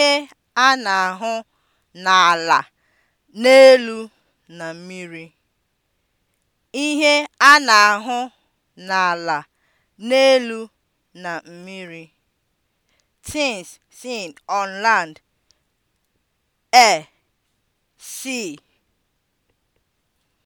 ihe a na-ahụ n'ala, n'elu na mmiri. Tins a na-ahụ seen on land: air, sea